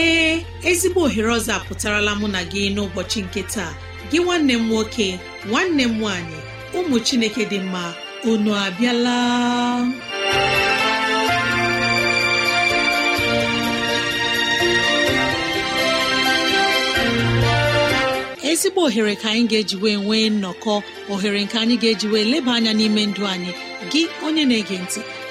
ee ezigbo ohere ọzọ apụtarala mụ na gị n'ụbọchị nke taa gị nwanne m nwoke nwanne m nwaanyị ụmụ chineke dị mma unu abịala ezigbo ohere ka anyị ga-eji wee nwee nnọkọ ohere nke anyị ga-eji wee leba anya n'ime ndụ anyị gị onye na-ege ntị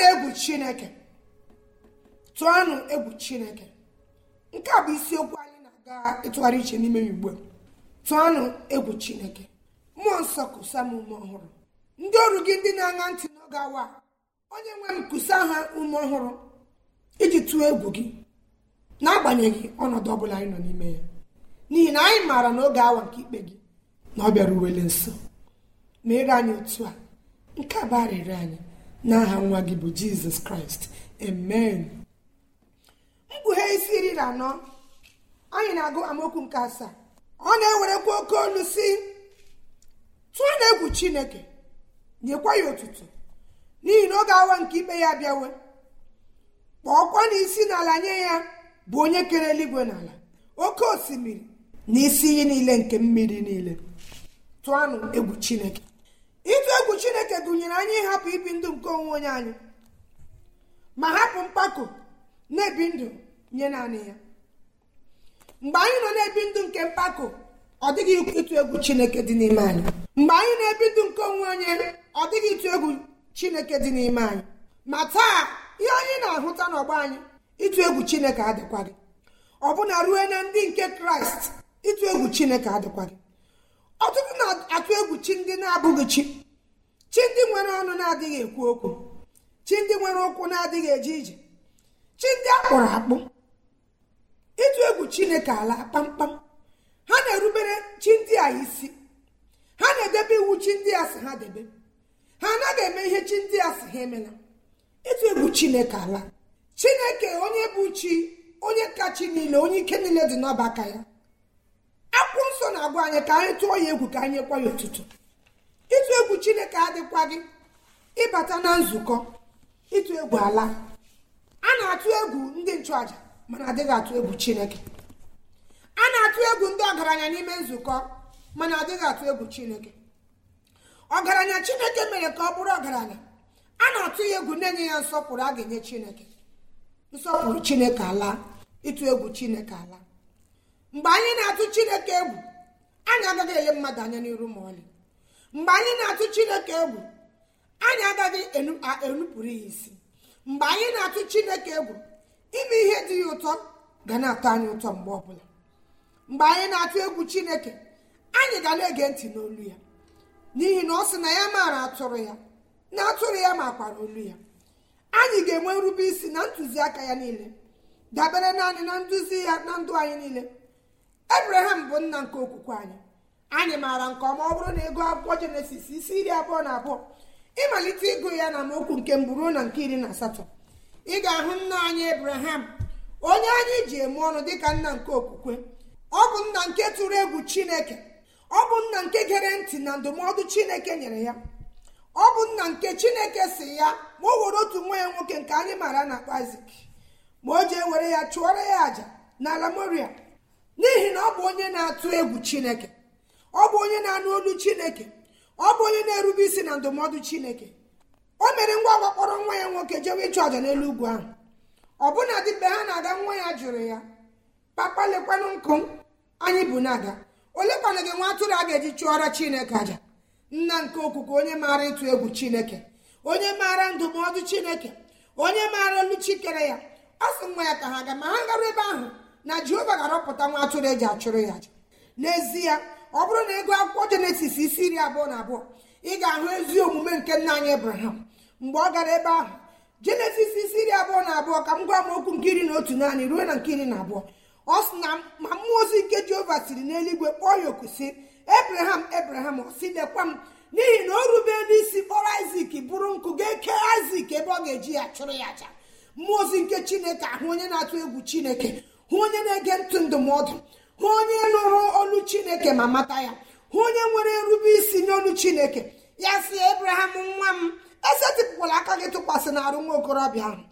tụọnụ egwu chineke tụọnụ egwu chineke nke a bụ isiokwu anyị na-aga ịtụgharị iche n'ime igbo tụọnụ egwu chineke mmụọ nsọ kụsa m ume ọhụrụ ndị ọrụ gị ndị na-aṅa ntị n'oge awa onye nwe m kụsa ha ume ọhụrụ iji tụọ egwu gị n'agbanyeghị ọnọdụ ọbụla anyị nọ n'ime ya n'ihi na anyị maara n'oge awa nke ikpe gị na ọ bịara uwele nso ma ere anyị otu a nke a bụ arịrịọ anyị n'aha nwa gị bụ jizọs kraịst amen mkpughe isi iri na anọ anyị na-agụ amaokwu nke asaa ọ na-ewerekwa oke olu si tụọ na egwu chineke nyekwa ya otutu n'ihi na ga awa nke ikpe ya bịawe kpọọkwa na isi n'ala nye ya bụ onye kere eluigwe n'ala oke osimiri na isi iyi niile nke mmiri niile tụọnụ egwu chineke chineke gụnyere anyị ịhapụ ibi ndụ nke onwe onye anyị ma hapụ mpako na-ebi ndụ nye naanị ya mgbe anyị nọ na-ebi ndụ nke mpako ọ dịghị ịtụ egwu chineke dị n'ime anyị mgbe anyị na-ebi ndụ nke onwe onye ọ dịghị ịtụ egwu chineke dị n'ime anyị ma taa ihe anyị na-ahụta n'ọgba anyị ịtụ egwu chineke adịkwaghị ọbụna ruo na ndị nke kraịst ịtụ egwu chineke adịkwaghị ọtụtụ na-atụ egwu chi ndị na-abụghị chi chi ndị nwere ọnụ na-adịghị ekwu okwu chi ndị nwere ụkwụ na-adịghị eje ije chi ndị akpụrụ akpụ ịtụ egwu chineke ala kpamkpam ha na-erubere chi ndị a isi ha na-edebe iwu chi ndị a si ha debe ha anaghị eme ihe chi ndị a si ha emela ịtụ egwu chineke ala chineke onye bụ chi onye kachi niile onye ike niile dị n'ọbaka aka ya Akwụ nsọ na-agwa anyị ka anyị tụọ ya egwu ka anyị ekwa ya ụtụtụ ịtụ egwu chineke adịkwa gị ịbata na nzukọ ịtụ egwu ala a na-atụ egwu ndị nchụaja mana adịghị atụ egwu chineke a na-atụ egwu ndị ọgaranya n'ime nzukọ mana adịghị atụ egwu chineke ọgaranya chineke mere ka ọ bụrụ ọgaranya a na-atụ ya egwu na-enye ya nsọpụrụ a ga-enye chineke nsọpụrụ chineke ala ịtụ egwu chineke ala mgbe anyị na-atụ chineke egwu anyị agaghị enye mmadụ anya n'iru ma ọlị mgbe anyị na-atụ chineke egwu anyị agaghị enupụrụ ya isi mgbe anyị na-atụ chineke egwu ime ihe dị ya ụtọ ga na-atọ anyị ụtọ mgbe ọbụla mgbe anyị na-atụ egwu chineke anyị ga na-ege ntị n'olu ya n'ihi na ọ sị na ya maara atụrụ ya na atụrụ ya makwara olu ya anyị ga-enwe nrube isi na ntụziaka ya niile dabere naanị na nduzi ya na ndụ anyị niile ebraham bụ nna nke okwukwe anyị anyị maara nke ọma ọ bụrụ na ego akwụkwọ jenesis isi iri abụọ na abụọ ịmalite ịgụ ya na mokwu nke mbụ na nke iri na asatọ ị ga-ahụ nna anyị ebraham onye anyị ji eme ọnụ dịka nna nke okwukwe ọ bụ nna nke tụrụ egwu chineke ọ bụ nna nke gere ntị na ndụmọdụ chineke nyere ya ọ bụ nna nke chineke si ya ma o were otu nwa ya nwoke nke anyị maara na kpazik ma o jee were ya chụọrọ ya àjà n'ala moria n'ihi na ọ bụ onye na-atụ egwu chineke ọ bụ onye na-anụ olu chineke ọ bụ onye na-erube isi na ndụmọdụ chineke o mere ngwa ngwa kpọrọ nwa ya nwoke jewe ịchụ aja n'elu ugwu ahụ ọbụna dị mgbe ha na-aga nwa ya jụrụ ya papa lekwanụ nkụ anyị bụ na-aga olekwana gị nwa atụrụ a ga-eji chụọra chineke aja? nna nke okuku onye maara ịtụ egwu chineke onye maara ndụmọdụ chineke onye maara olu chikere ya ọ sị nwa ya ka ha ga ma ha gara ebe ahụ na jehova ga-arọpụta nwa atụrụ eji achụrụ ya aja. n'ezie ọ bụrụ na ego akwụkwọ jenesis isi iri abụọ na abụọ ị ga-ahụ ezi omume nke nna anyị ebraham mgbe ọ gara ebe ahụ jenesis isi iri abụọ na abụọ ka m gwa m okwu nke iri na otu naanị ruo na nke iri na abụọ ọ sị na ma mmụọ ozi nke jehova siri n'eluigwe kpọọ ya oku sị ebraham ebraham ọ sị lekwa m n'ihi na o rubela isi kpọrọ isak bụrụ nkụ ga-eke isak ebe ọ ga-eji ya chụrụ ya aja mmụọ ozi nke chineke ahụ onye na-atụ egwu chineke hụ onye na-ege ntụ ndụmọdụ hụ onye nụrụ olu chineke ma mata ya hụ onye nwere nrube isi olu chineke ya si ebraham nwa m esetịpụkwala aka gị tụkwasị na arụ nwa okorobịa ahụ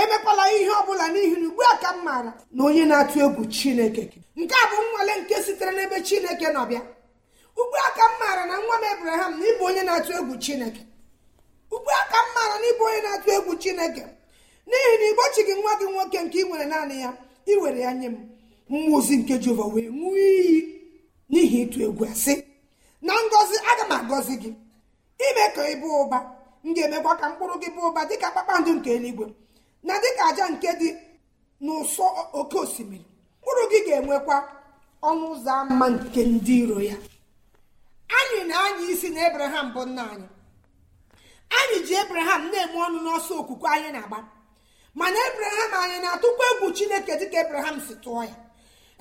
emekwala ihe ọ bụla n'ihi na ugbu a ka m maara na onye na-atụ egwu chineke nke a bụ nnwale nke sitere n'ebe chineke nọbịa ugbu a ka m maara na nwa m ebraham na ịbụ onye na-atụ egwu chineke ugbu a ka m maara na ịbụ onye na-atụ egwu chineke n'ihi na igbochi gị nwa gị nwoke nke ị nwere naanị ya ị were ya nye m mmụọ ozi nke jehova wee ṅụọ iyi n'ihi ịtụ egwu asị na ngọzi aga m agọzi gị ime ka ị bụ ụba m ga-emekwa ka mkpụrụ gị bụ ụba dịka kpakpando nke eluigwe na dịka aja nke dị n'ụsọ oke osimiri mkpụrụ gị ga-enwekwa ọnụ ụzọ ámá nke ndị iro ya anyị na anyị isi na ebraham bụ nna anyị anyị ji ebraham na-enwe ọnụ n'ọsọ okwukwe anyị na-agba mana ebraham anyị na-atụkwa egwu chineke dịka ebraham si tụọ ya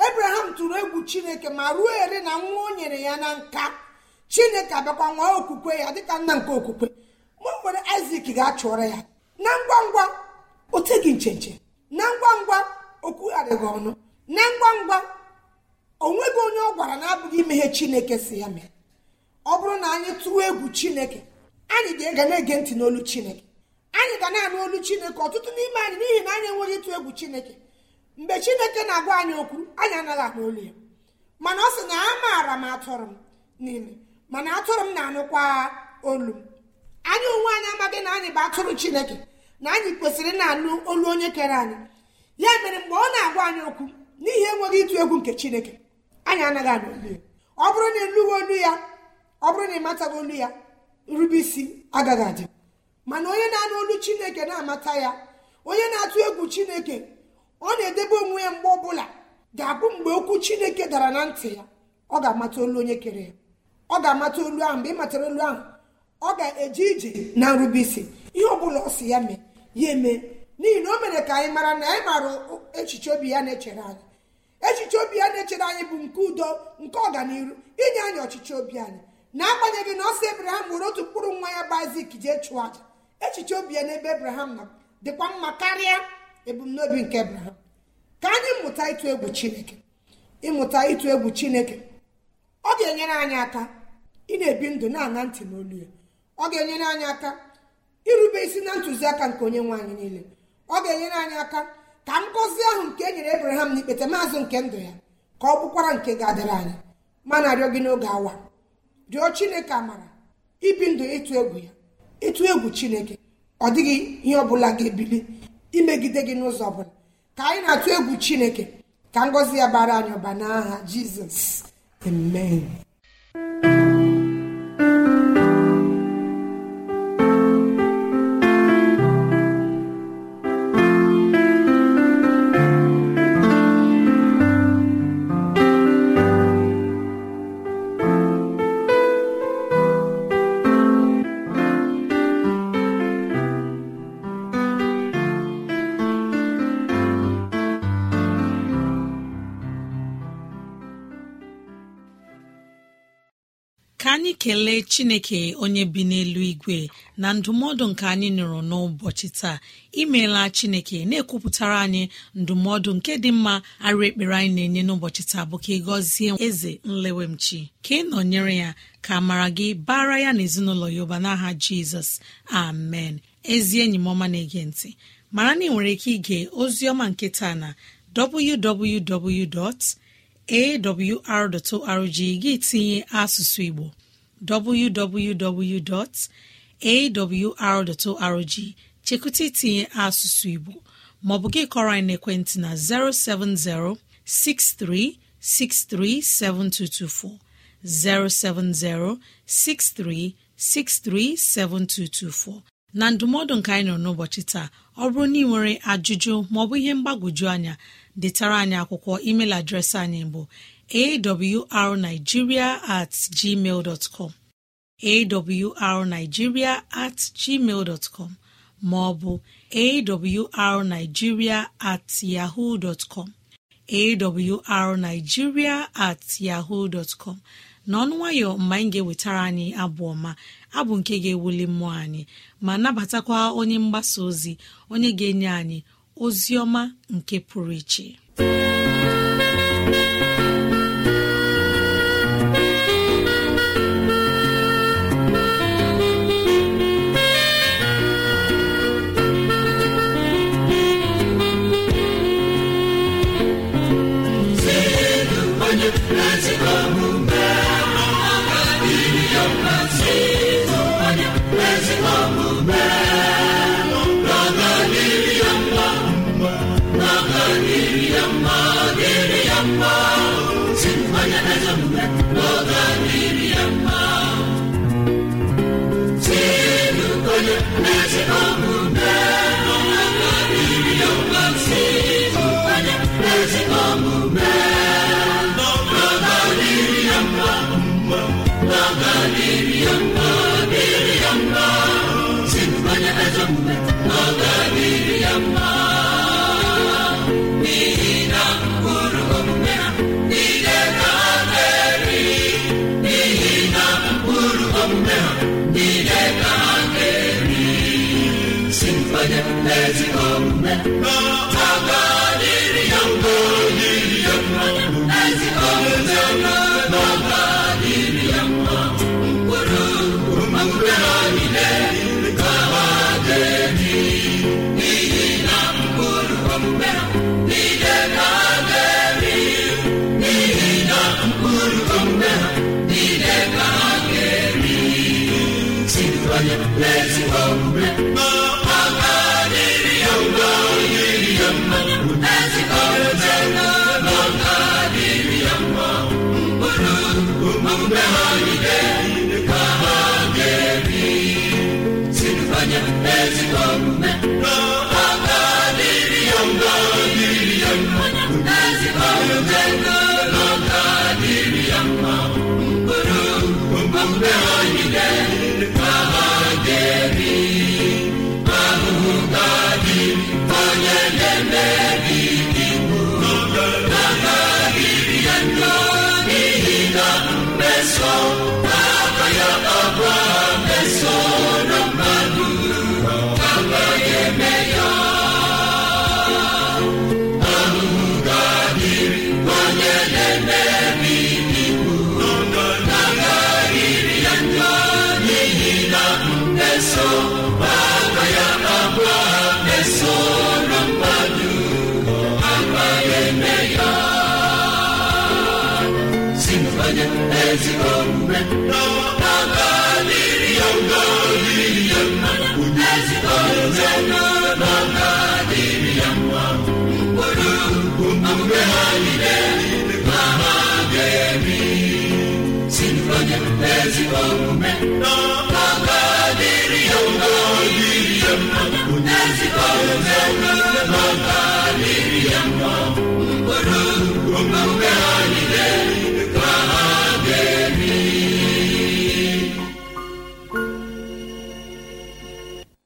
ebraham tụrụ egwu chineke ma ruo ere na nwa o nyere ya na nka chineke abịakwa nwa okwukwe ya dịka nna nke okwukwe mụ nwere isak ga achụrụ ya na ngwa ngwa o teghị nchenche na ngwa ngwa o ọnụ na ngwa ngwa o nweghị onye ọ gwara na-abụghị imeghe chineke si ya mee ọ bụrụ na anyị tụọ egwu chineke anyị ga-ega na-ege ntị n'olu chineke anyị ga na-anụ olu chineke ọtụtụ n'ime anyị n'ihi na anyị enweghị ịtụ egwu chineke mgbe chineke na-agwa anyị okwu anyị anaghị akpa olu ya mana ọ sị na a maara m atụrụ m niile mana atụrụ m na-anụkwa olu m anyị onwe anyị amaghị na anyị bụ atụrụ chineke na anyị kwesịrị na-anụ olu onye kere anyị ya mere mgbe ọ na-agwa anyị okwu n'ihi enweghị ịtụ egwu nke chineke anyị anaghị anụ olu ya ọ bụrụ na ịlụghị olu ya ọ bụrụ na ịmataghị olu ya nrube isi agaghị adị mana onye na-anụ olu chineke na-amata ya onye na-atụ egwu chineke ọ na-edebe onwe ya mgbe ọbụla ga-abụ mgbe okwu chineke dara na ntị ya ọ ga-amata olu onye kere ya ọ ga-amata olu ahụ mgbe ị matara olu ahụ ọ ga-eje ije na nrubeisi ihe ọbụla ọ si ya mee ya eme n'ihi na o mere ka anyị mara na anyị maara echiche obi ya na-echere anyị echiche obi ya na-echere anyị bụ nke udo nke ọganiru inye anyị ọchịchị obi anyị na-agbanyeghị na ọsọ sị ebraham were otu mkpụrụ nwa ya bụ isak jee chụọ aja echiche obi ya n'ebe ebraham na dịkwa mma karịa ebumnobi nke ebraham ka anyị mụta ịtụ egwu chineke ịmụta ịtụ egwu chineke ọ ga-enyere anyị aka ị na-ebi ndụ na-ana ntị n'olu ya ọ ga-enyere anyị aka irube isi na ntụziaka nke onye nwe anyị niile ọ ga-enyere anyị aka ka ngọzi ahụ nke e nyere abraham na ikpete maazụ nke ndụ ya ka ọ bụkwara nke ga-adịrị anyị ma na-arịọ gị n'oge awa rịọ chineke amara ibi ndụ ịtụ egwu ya ịtụ egwu chineke ọ dịghị ihe ọ bụla ga-ebili imegide gị n'ụzọ ọbụla ka anyị na-atụ egwu chineke ka ngọzi ya bara anyị ọba n'aha jizọs amen kelee chineke onye bi n'elu igwe na ndụmọdụ nke anyị nụrụ n'ụbọchị taa imeela chineke na-ekwupụtara anyị ndụmọdụ nke dị mma arụ ekpere anyị na-enye n'ụbọchị taa bụ ka ị gọzie eze nlewemchi ka ị nọnyere ya ka mara gị bara ya na ezinụlọ ya n'aha jizọs amen ezi enyi m ọma na-ege ntị mara na ị nwere ike ige ozi ọma nke taa na www.awr.org gị tinye asụsụ igbo www.awr.org chekụta itinye asụsụ Igbo maọbụ gị kọrọ anyị n'ekwentị na 070 7224. 070 7224. na ndụmọdụ nke anyị nọ n'ụbọchị taa ọ bụrụ na ị nwere ajụjụ maọbụ ihe mgbagwoju anya detara anyị akwụkwọ email adreesị anyị bụ awrnigeria at gmail com awrnigeria at gmail dọtcọm maọbụ awrnigeria at yahoo com awrnigeria at yahoo dọtcọm n'ọnụ nwayọ mgbe anyị ga-ewetara anyị abụ ọma abụ nke ga-ewuli mmụọ anyị ma nabatakwa onye mgbasa ozi onye ga-enye anyị ozi ọma nke pụrụ iche o Home. ezi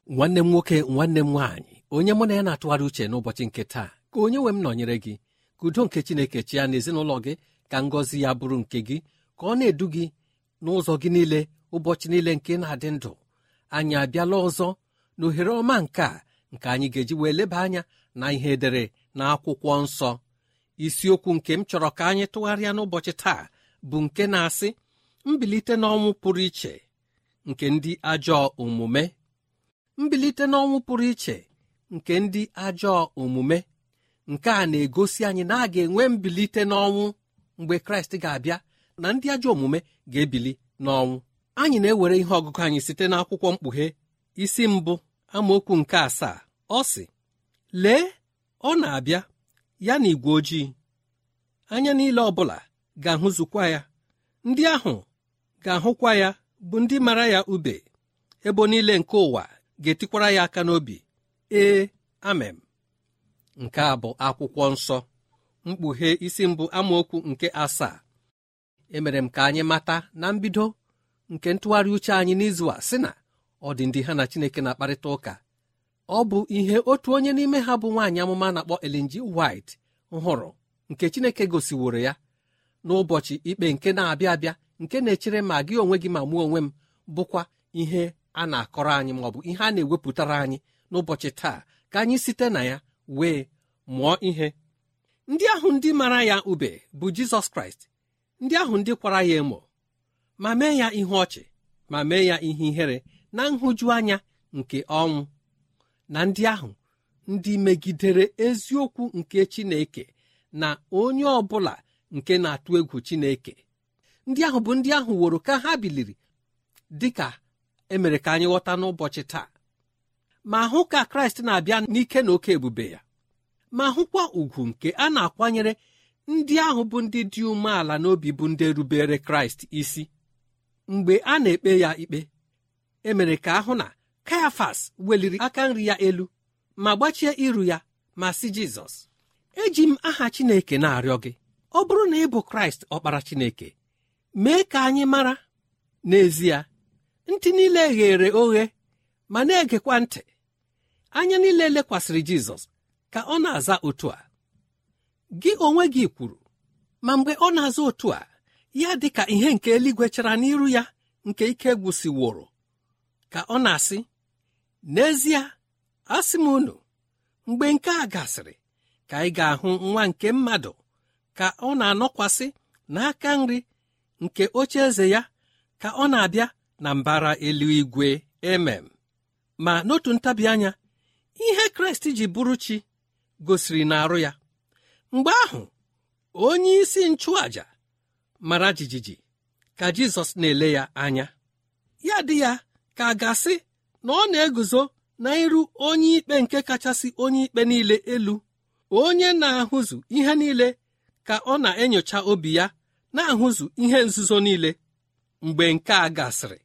nwanne m nwoke nwanne m nwaanyị onye mụ na ya na-atụgharị uche n'ụbọchị nke taa ka onye nwe m nọnyere gị ka udo nke chineke ya n'ezinụlọ gị ka ngọzi ya bụrụ nke gị ka ọ na-edu gị n'ụzọ gị niile ụbọchị niile nke na-adị ndụ anyị abịala ọzọ na ohere ọma nke a nke anyị ga-eji wee leba anya na ihe edere na akwụkwọ nsọ isiokwu nke m chọrọ ka anyị tụgharịa n'ụbọchị taa bụ nke na-asị mbilite n'ọnwụ pụrụ iche nke ndị ajọ omume mbilite n'ọnwụ pụrụ iche nke ndị ajọ omume nke a na-egosi anyị na a ga-enwe mbilite n'ọnwụ mgbe kraịst ga-abịa na ndị ajọ omume ga-ebili n'ọnwụ anyị na-ewere ihe ọgụgụ anyị site n'akwụkwọ mkpughe isi mbụ amaokwu nke asaa ọ sị lee ọ na-abịa ya na igwe ojii anya niile ọbụla ga-ahụzukwa ya ndị ahụ ga-ahụkwa ya bụ ndị mara ya ube ebo niile nke ụwa ga-etikwara ya aka n'obi ee amem nke a bụ akwụkwọ nsọ mkpughe isi mbụ amaokwu nke asaa emere m ka anyị mata na mbido nke ntụgharị uche anyị n'izu a sị na ọ dị ndị ha na Chineke na-akparịta ụka ọ bụ ihe otu onye n'ime ha bụ nwaanyị amụma na-akpọ elinji White hụrụ nke Chineke gosiworo ya n'ụbọchị ikpe nke na-abịa abịa nke na-echere ma gị onwe gị ma mụọ onwe m bụkwa ihe a na-akọrọ anyị ma ọ bụ ihe a na-ewepụtara anyị n'ụbọchị taa ka anyị site na ya wee mụọ ihe ndị ahụ ndị mara ya ube bụ Jizọs Kraịst ndị ahụ ndị kwara ya emo ma mee ya ihe ọchị ma mee ya ihe ihere na nhụjuanya nke ọnwụ na ndị ahụ ndị megidere eziokwu nke Chineke na onye ọ bụla nke na-atụ egwu Chineke ndị ahụ bụ ndị ahụ woro ka ha biliri dị ka emere ka anyị ghọta n'ụbọchị taa ma hụ ka Kraịst na-abịa n'ike na oke ebube ya ma hụkwa ugwu nke a na-akwanyere ndị ahụ bụ ndị dị umeala n'obi bụ ndị rubere Kraịst isi mgbe a na-ekpe ya ikpe emere ka ahụ na kayafas weliri aka nri ya elu ma gbachie iru ya ma si jizọs eji m aha chineke na-arịọ gị ọ bụrụ na ị bụ kraịst ọkpara chineke mee ka anyị mara n'ezie ntị niile ghere oghe ma na-egekwa ntị anya niile lekwasịrị jizọs ka ọ na-aza otu a gị onwe gị kwuru ma mgbe ọ na-aza otu a ya dị ka ihe nke eluigwe chara n'iru ya nke ike gwụsịworo ka ọ na-asị n'ezie asị m unu mgbe nke a gasịrị ka ị ga-ahụ nwa nke mmadụ ka ọ na-anọkwasị n'aka nri nke oche eze ya ka ọ na-abịa na mbara eluigwe emem ma n'otu ntabi anya ihe kraịst ji bụrụ chi gosiri n'arụ ya mgbe ahụ onye isi mara jijiji ka jizọs na-ele ya anya ya dị ya ka a gasị na ọ na-eguzo na iru onye ikpe nke kachasị onye ikpe niile elu onye na-ahụzu ihe niile ka ọ na-enyocha obi ya na-ahụzu ihe nzuzo niile mgbe nke a gasịrị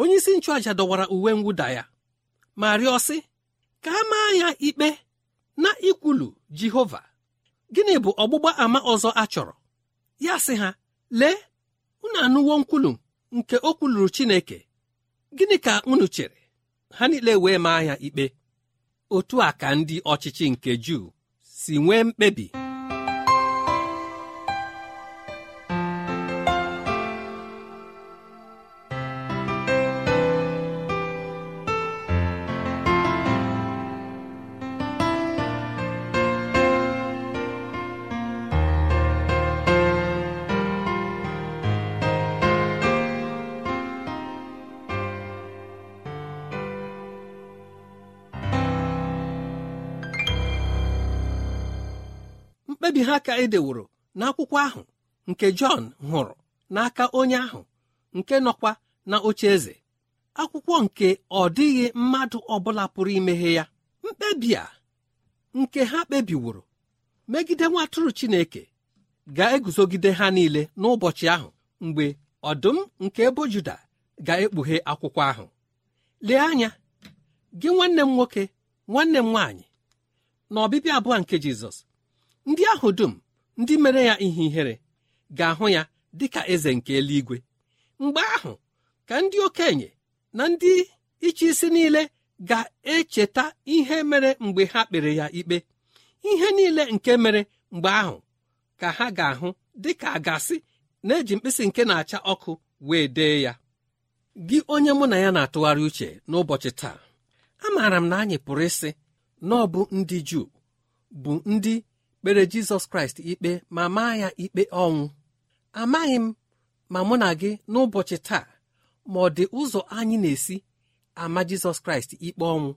onye isi nchụàja dọwara uwe mwụda ya ma rịọ ka a maa ya ikpe na ikwulu jehova gịnị bụ ọgbụgba ama ọzọ a chọrọ ya sị ha lee unu anụwo nkwulu nke o kwuluru Chineke gịnị ka unu chere ha niile wee maa ya ikpe otu a ka ndị ọchịchị nke Juu si nwee mkpebi aka edeworo n'akwụkwọ ahụ nke Jọn hụrụ n'aka onye ahụ nke nọkwa na oche eze akwụkwọ nke ọdịghị dịghị mmadụ ọbụla pụrụ imeghe ya mkpebi a nke ha kpebiworo megide nwa Chineke ga-eguzogide ha niile n'ụbọchị ahụ mgbe ọdụm nke ebo Juda ga-ekpughe akwụkwọ ahụ lee anya gị nwanne m nwoke nwanne m nwaanyị na ọbịbịa abụọ nke Jizọs ndị ahụ dum ndị mere ya ihe ihere ga-ahụ ya dị ka eze nke eluigwe mgbe ahụ ka ndị okenye na ndị ịchị isi niile ga-echeta ihe mere mgbe ha kpere ya ikpe ihe niile nke mere mgbe ahụ ka ha ga-ahụ dị ka a gasị na-eji mkpịsị nke na-acha ọkụ wee dee ya gị onye mụ na ya na-atụgharị uche n'ụbọchị taa amaara m na anyị pụrụ ịsị na ọ bụ ndị Juu bụ ndị kpere jizọs kraịst ikpe ma maa ya ikpe ọnwụ amaghị m ma mụ na gị n'ụbọchị taa ma ọ dị ụzọ anyị na-esi ama jizọs kraịst ikpe ọnwụ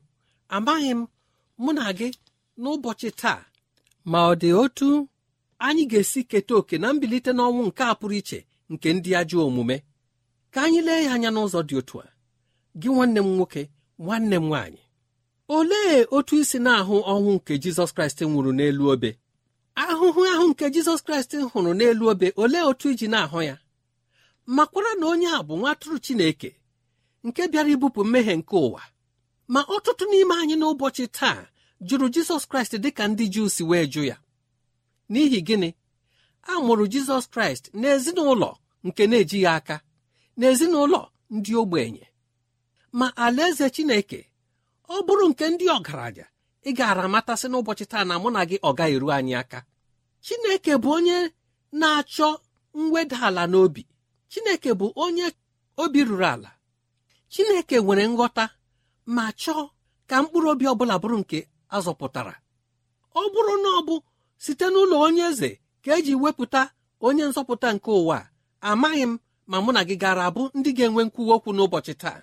amaghị m mụ na gị n'ụbọchị taa ma ọ dị otu anyị ga-esi keta oke na mbilite n'ọnwụ nke a pụrụ iche nke ndị ajọ omume ka anyị lee ya anya n'ụzọ dị otu a gị nwanne m nwoke nwanne m nwaanyị olee otu isi na-ahụ ọnwụ nke jizọs kraịst nwụrụ n'elu obe ahụhụ ahụ nke jizọs kraịst hụrụ n'elu obe olee otu iji na-ahụ ya makwara na onye a bụ nwatụrụ chineke nke bịara ibupụ mmehie nke ụwa ma ọtụtụ n'ime anyị n'ụbọchị taa jụrụ jizọs kraịst dị ka ndị juu si wee jụ ya n'ihi gịnị a mụrụ jizọs kraịst n'ezinụlọ nke na-ejighị aka n'ezinụlọ ndị ogbenye ma alaeze chineke ọ bụrụ nke ndị ọgaranya ị gaara amatasị n'ụbọchị taa na mụ na gị ọ gaghị eru anyị aka chineke bụ onye na-achọ mweda ala n'obi chineke bụ onye obi ruru ala chineke nwere nghọta ma chọọ ka mkpụrụ obi ọbụla bụrụ nke azọpụtara ọ bụrụ na ọ bụ site n'ụlọ onye eze ka eji wepụta onye nzọpụta nke ụwa amaghị m ma mụ na gị gara abụ ndị ga-enwe nkwuwa okwu n'ụbọchị taa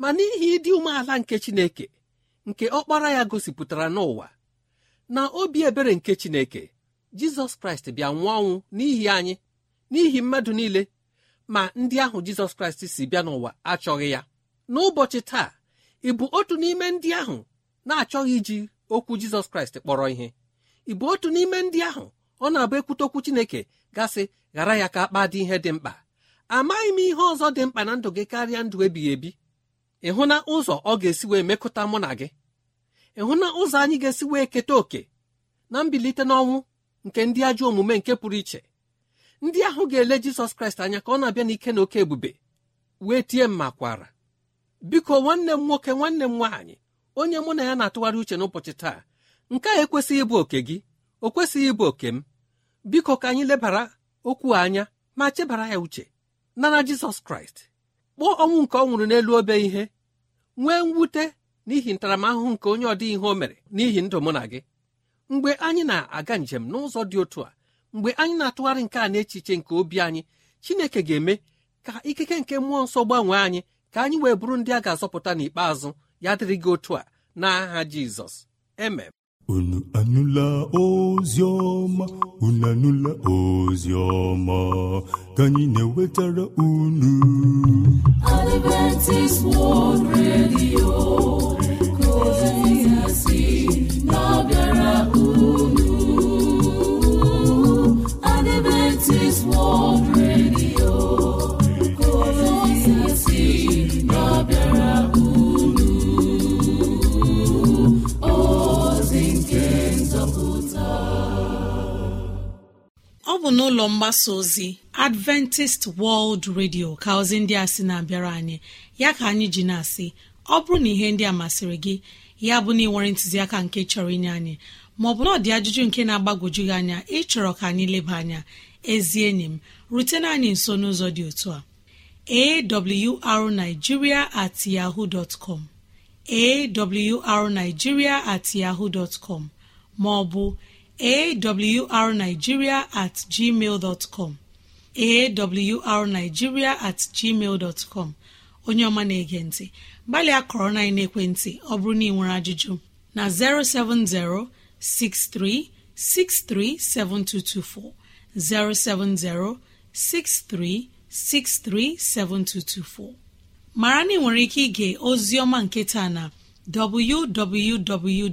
ma n'ihi ịdị umeala nke chineke nke ọkpara ya gosipụtara n'ụwa na obi ebere nke Chineke Jizọs Kraịst bịa nwụọ ọnwụ n'ihi anyị n'ihi mmadụ niile ma ndị ahụ Jizọs Kraịst si bịa n'ụwa achọghị ya n'ụbọchị taa ị bụ otu n'ime ndị ahụ na-achọghị iji okwu Jizọs Kraịst kpọrọ ihe ị bụ otu n'ime ndị ahụ ọ na-abụ ekwute okwu Chineke gasị ghara ya ka akpa dị ihe dị mkpa amaghị m ihe ọzọ dị mkpa na ndụ gị karịa ndụ ebighị ebi ịhụ na ụzọ ọ ga-esi wee mekọta mụ na gị ịhụ na ụzọ anyị ga-esi wee keta oke na mbilite n'ọnwụ nke ndị ajọ omume nke pụrụ iche ndị ahụ ga-ele jizọs kraịst anya ka ọ na-abịa n'ike na oke ebube wee tie mma kwara biko nwanne m nwoke nwanne m nwaanyị onye mụ na ya na-atụgharị uche n'ụbọchị taa nke a ekwesịghị ịbụ oke gị o kwesịghị ịbụ oke m biko ka anyị lebara okwu anya ma chebara ya uche nara jizọs kraịst kpọọ ọnwụ nke ọ nwụrụ n'elu obe ihe nwee mwute n'ihi ntaramahụhụ nke onye ọdị ihe o mere n'ihi ndụ mụ na gị mgbe anyị na-aga njem n'ụzọ dị otu a mgbe anyị na-atụgharị nke a n'echiche nke obi anyị chineke ga-eme ka ikike nke mmụọ nsọ gbanwee anyị ka anyị wee bụrụ ndị a ga-azọpụta n'ikpeazụ ya dịrị gị otu a n'aha Jizọs emem unu anụla ozi ọma unu anụla ozi ọma ka anyị na-ewetara unu Adventist World Radio n'ụlọ mgbasa ozi adventist world radio ka ozi ndị a sị na-abịara anyị ya ka anyị ji na-asị ọ bụrụ na ihe ndị a masịrị gị ya bụ na ịnwere ntụziaka nke chọrọ inye anyị maọbụ na ọ dị ajụjụ nke na-agbagwoju gị anya ịchọrọ ka anyị leba anya ezi enyi m rutena anyị nso n'ụzọ dị otu a awrnigeria at yahoo dot com at yahoo dot com maọbụ awrnigeria at com awrnigeria at com onye ọma na-ege ntị gbalịa kọrọ na ekwentị ọ bụrụ na ị nwere ajụjụ na 07063637224 7224 mara na ị nwere ike ige ozi ọma nke taa na www.